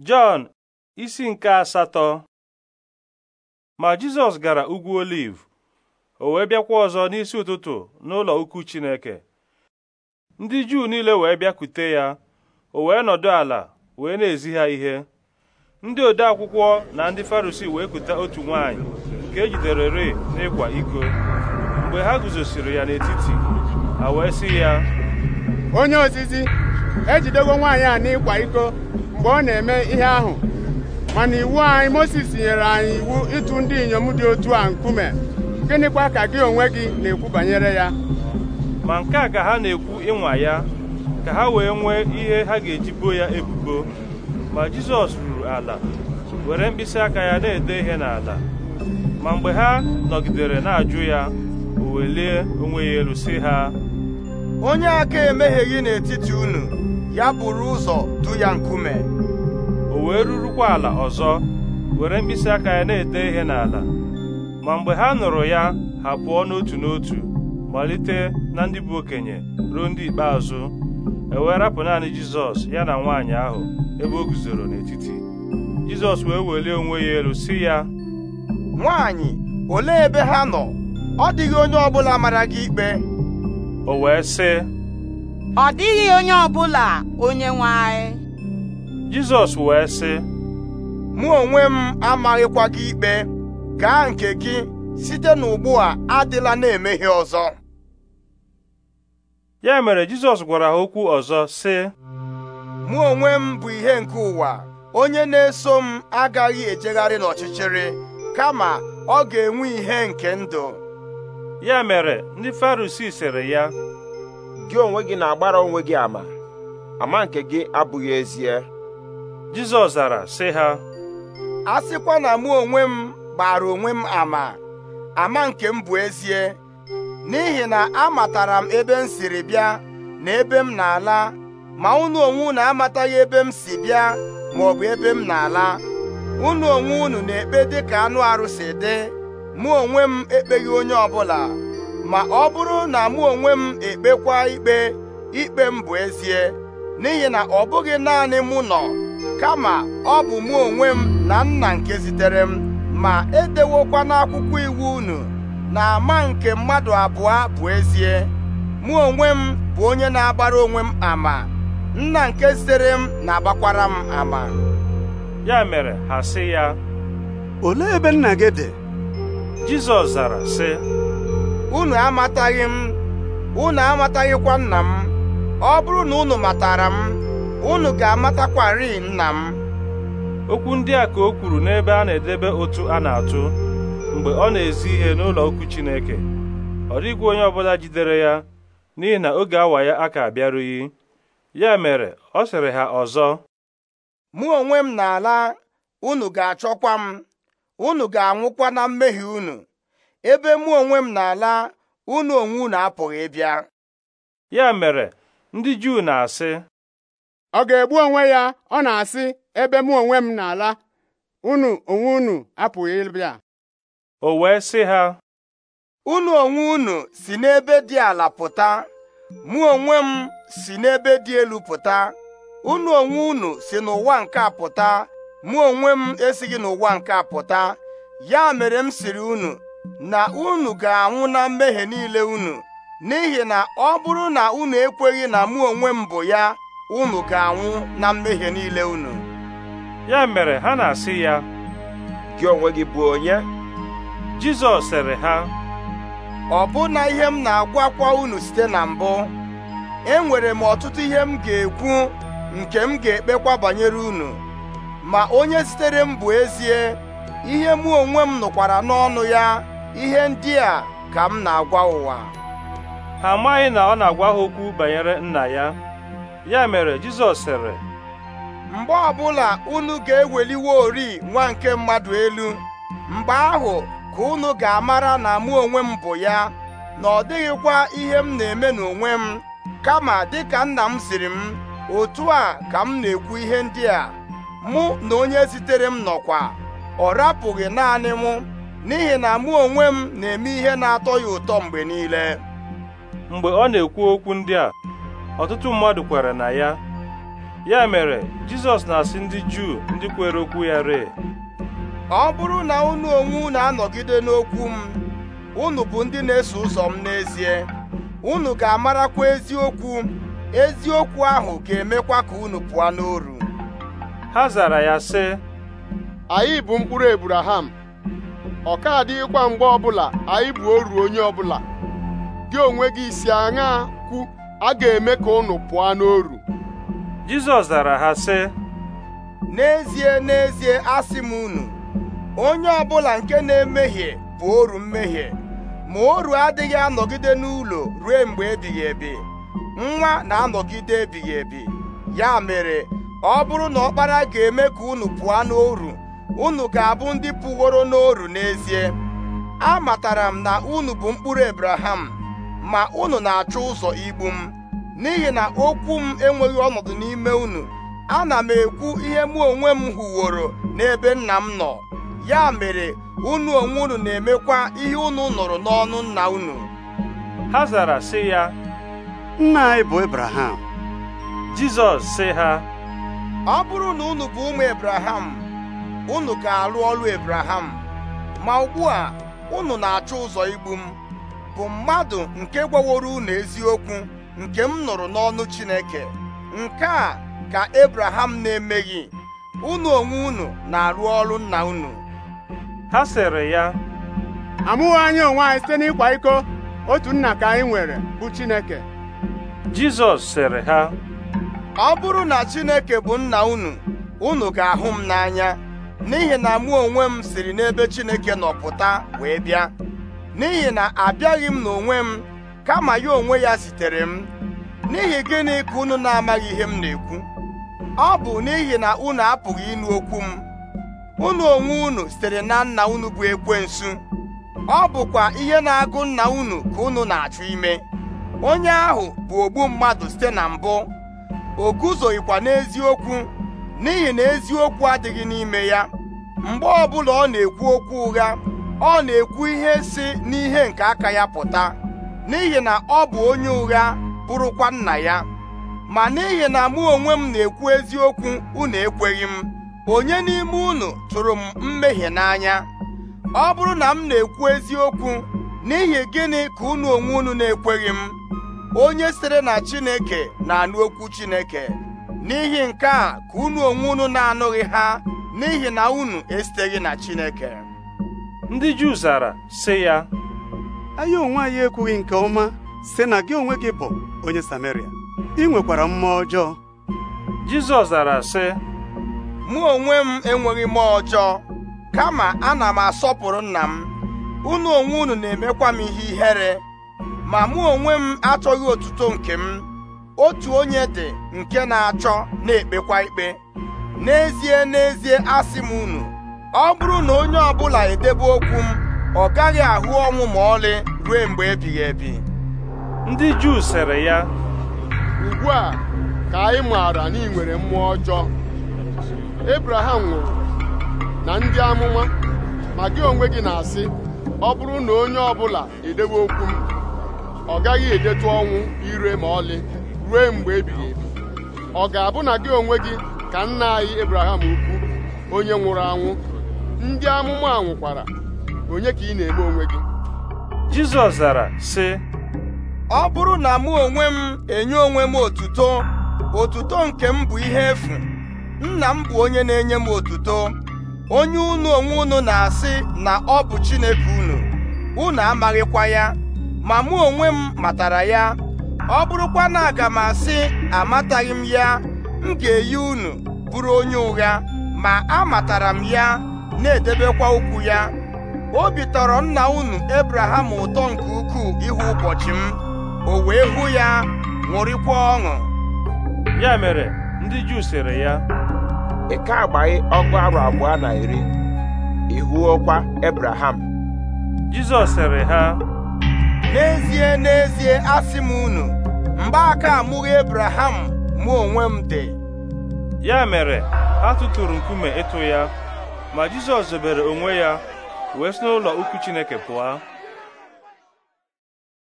Jọn isi nke asatọ ma Jizọs gara ugwu oliv o wee bịakwa ọzọ n'isi ụtụtụ n'ụlọ ukwu Chineke ndị Juu niile wee bịakwute ya o wee nọdụ ala wee na-ezi ha ihe ndị ode akwụkwọ na ndị Farisii wee kuta otu nwaanyị nke ejidere re n'ịkwa iko mgbe ha guzosiri ya n'etiti ha wee sị ya onye ozizi ejidego nwaanyị a n'ịkwa iko mgbe ọ na-eme ihe ahụ mana iwu anyị Mozis nyere anyị iwu ịtụ ndị inyom dị otu a nkume gịnịkwa ka gị onwe gị na-ekwu banyere ya ma nke a ka ha na-ekwu ịnwa ya ka ha wee nwee ihe ha ga-eji boo ya ebubo ma Jizọs ruru ala were mkpịsị aka ya na-ede ihe n'ala ma mgbe ha nọgidere na-ajụ ya o welie onwe ya elu si ha onye aka gị n'etiti unu ya bụrụ ụzọ du ya nkume o wee rurukwa ala ọzọ were mkpịsị aka ya na-ede ihe n'ala ma mgbe ha nụrụ ya ha pụọ n'otu n'otu malite na ndị bụ okenye ruo ndị ikpeazụ e wee rapụ naanị Jizọs ya na nwaanyị ahụ ebe o guzoro n'etiti Jizọs wee welie onwe ya elu si ya nwaanyị olee ebe ha nọ ọ dịghị onye ọbụla mara gị ikpe o wee sị ọ dịghị onye ọbụla onye nwe anyị Jizọs wee sị mụ onwe m amaghịkwa gị ikpe gaa nke gị site n'ugbu a adịla na emeghị ọzọ ya mere Jizọs gwara ha okwu ọzọ sị mụ onwe m bụ ihe nke ụwa onye na-eso m agaghị ejegharị n'ọchịchịrị kama ọ ga-enwe ihe nke ndụ ya mere ndị Farisii sịrị ya gị onwe gị na-agbara onwe gị ama ama nke gị abụghị ezie Jizọs zara sị ha a sịkwa na mụ onwe m gbara onwe m ama ama nke m bụ ezie n'ihi na amatara m ebe m siri bịa na ebe m na-ala ma unu onwe unu amataghị ebe m si bịa ma ọ bụ ebe m na-ala unu onwe unu na-ekpe dị ka anụ arụsị dị mụ onwe m ekpeghị onye ọbụla ma ọ bụrụ na mụ onwe m ekpekwa ikpe ikpe m bụ ezie n'ihi na ọ bụghị naanị mụ nọ kama ọ bụ mụ onwe m na nna nke zitere m ma edewokwa n'akwụkwọ iwu unu na ama nke mmadụ abụọ bụ ezie mụ onwe m bụ onye na-agbara onwe m ama nna nke zitere m na-agbakwara m ama ya mere ha sị ya olee ebe nna gị dị Jizọs zara sị unu amataghị m unu amataghịkwa nna m ọ bụrụ na unu matara m unu ga-amatakwarị nna m okwu ndị a ka o kwuru n'ebe a na-edebe otu a na-atụ mgbe ọ na-ezi ihe n'ụlọ okwu Chineke ọ dịghị onye ọbụla jidere ya n'ihi na oge awa ya aka abịarughị ya mere ọ sịrị ha ọzọ mụ onwe m na-ala unu ga-achọkwa m unu ga-anwụkwa na mmehie unu ebe mụ onwe m na-ala unu onwe unu apụghị ịbịa ya mere ndị Juu na-asị ọ ga-egbu onwe ya ọ na-asị ebe mụ onwe m na-ala unu onwe unu apụghị ịbịa o wee sị ha unu onwe unu si n'ebe dị ala pụta mụ onwe m si n'ebe dị elu pụta unu onwe unu si n'ụwa nke a pụta mụ onwe m esighị n'ụwa nke a pụta ya mere m siri unu na unu ga-anwụ na mmehie niile unu n'ihi na ọ bụrụ na unu ekweghị na mụ onwe m bụ ya unu ga-anwụ na mmehie niile unu ya mere ha na-asị ya gị onwe gị bụ onye Jizọs sịrị ha ọbụna ihe m na-agwakwa unu site na mbụ enwere m ọtụtụ ihe m ga-ekwu nke m ga-ekpekwa banyere unu ma onye sitere m bụ ezie ihe mụ onwe m nụkwara n'ọnụ ya ihe ndị a ka m na-agwa ụwa ha amaghị na ọ na-agwa ha okwu banyere nna ya ya mere Jizọs sịrị mgbe ọbụla unu ga-eweliwe ori nwa nke mmadụ elu mgbe ahụ ka unu ga-amara na mụ onwe m bụ ya na ọ dịghịkwa ihe m na-eme n'onwe m kama dịka nna m siri m otu a ka m na-ekwu ihe ndị a mụ na onye zitere m nọkwa ọ rapụghị naanị mụ n'ihi na mụ onwe m na-eme ihe na-atọ ya ụtọ mgbe niile mgbe ọ na-ekwu okwu ndị a ọtụtụ mmadụ kwere na ya ya mere Jizọs na-asị ndị Juu ndị kwere okwu ya ree ọ bụrụ na unu onwe unu anọgide n'okwu m unu bụ ndị na-eso ụzọ m n'ezie unu ga-amarakwa eziokwu eziokwu ahụ ga-emekwa ka unu pụọ n'oru ha zara ya sị anyị bụ mkpụrụ Ebraham ọ ka adịghịkwa mgbe ọbụla anyị bụ oru onye ọbụla gị onwe gị si aṅa kwu a ga-eme ka unu pụọ n'oru Jizọs zara ha sị n'ezie n'ezie asị m unu onye ọbụla nke na-emehie bụ oru mmehie ma oru adịghị anọgide n'ụlọ ruo mgbe ebighị ebi nwa na-anọgide ebighị ebi ya mere ọ bụrụ na ọkpara ga-eme ka unu pụọ n'oru unu ga-abụ ndị pụworo n'oru n'ezie A matara m na unu bụ mkpụrụ ebraham ma unu na-achọ ụzọ igbu m n'ihi na okwu m enweghị ọnọdụ n'ime unu ana m ekwu ihe mụ onwe m hụworo n'ebe nna m nọ ya mere unu onwe unu na-emekwa ihe unu nụrụ n'ọnụ nna unu ha zara sị ya nna anyị bụ Jizọs sị ha ọ bụrụ na unu bụ ụmụ ebraham unu ga arụ ọrụ Ebraham ma ugbu a unu na-achọ ụzọ igbu m bụ mmadụ nke gwaworo unu eziokwu nke m nụrụ n'ọnụ Chineke nke a ka Ebraham na-emeghị unu onwe unu na-arụ ọrụ nna unu ha sịrị ya amụghị anya onwe anyị site n'ịkwa iko otu nna ka anyị nwere bụ Chineke Jizọs sịrị ha ọ bụrụ na Chineke bụ nna unu unu ga-ahụ m n'anya n'ihi na mụ onwe m siri n'ebe Chineke nọpụta wee bịa n'ihi na abịaghị m n'onwe m kama ya onwe ya zitere m n'ihi gịnị ka unu na-amaghị ihe m na-ekwu ọ bụ n'ihi na unu apụghị ịnụ okwu m unu onwe unu sitere na nna unu bụ ekwensu ọ bụkwa ihe na-agụ nna unu ka unu na-achụ ime onye ahụ bụ ogbu mmadụ site na mbụ o guzoghịkwa n'eziokwu n'ihi na eziokwu adịghị n'ime ya mgbe ọbụla ọ na-ekwu okwu ụgha ọ na-ekwu ihe si n'ihe nke aka ya pụta n'ihi na ọ bụ onye ụgha bụrụkwa nna ya ma n'ihi na mụ onwe m na-ekwu eziokwu unu ekweghị m onye n'ime unu tụrụ m mmehie n'anya ọ bụrụ na m na-ekwu eziokwu n'ihi gịnị ka unu onwe unu na-ekweghị m onye sịrị na Chineke na-anụ okwu Chineke n'ihi nke a ka unu onwe unu na-anụghị ha n'ihi na unu esiteghị na Chineke ndị Juu zara sị ya anyị onwe anyị ekwughị nke ọma sị na gị onwe gị bụ onye Sameria ị nwekwara mmụọ ọjọọ Jizọs zara sị mụ onwe m enweghị mmụọ ọjọọ kama ana m asọpụrụ nna m unu onwe unu na-emekwa m ihe ihere ma mụ onwe m achọghị otuto nke m otu onye dị nke na-achọ na-ekpekwa ikpe n'ezie n'ezie asị m unu ọ bụrụ na onye ọbụla edebe okwu m ọ gaghị ahụ ọnwụ ma ọlị ruo mgbe ebighị ebi ndị Juu sịrị ya ugbu a ka anyị maara na ị nwere mmụọ ọjọọ Ebraham nwụrụ na ndị amụma ma gị onwe gị na-asị ọ bụrụ na onye ọbụla edebe okwu m ọ gaghị edetụ ọnwụ ire ma ọlị ruo mgbe ebighị ebi ọ ga-abụ na gị onwe gị ka nna anyị Abraham ukwu onye nwụrụ anwụ ndị amụma nwụkwara onye ka ị na-eme onwe gị Jizọs zara sị ọ bụrụ na mụ onwe m enye onwe m otuto otuto nke m bụ ihe efu nna m bụ onye na-enye m otuto onye unu onwe unu na-asị na ọ bụ Chineke unu unu amaghịkwa ya ma mụ onwe m matara ya ọ bụrụkwa na aga m asị amataghị m ya m ga-eyi unu bụrụ onye ụgha ma amatara m ya na-edebekwa ukwu ya obi tọrọ nna unu Ebraham ụtọ nke ukwuu ịhụ ụbọchị m o wee hụ ya ṅụrịkwa ọṅụ ya mere ndị Juu sịrị ya ịka ka agbaghị ọgụ arụ abụọ na iri ị hụọkwa Ebraham Jizọs sịrị ha n'ezie n'ezie asị m unu aka amụghị Abraham mụ onwe m dị ya mere ha tụtụrụ nkume ịtụ ya ma Jizọs zobere onwe ya wee si n'ụlọ ukwu Chineke pụọ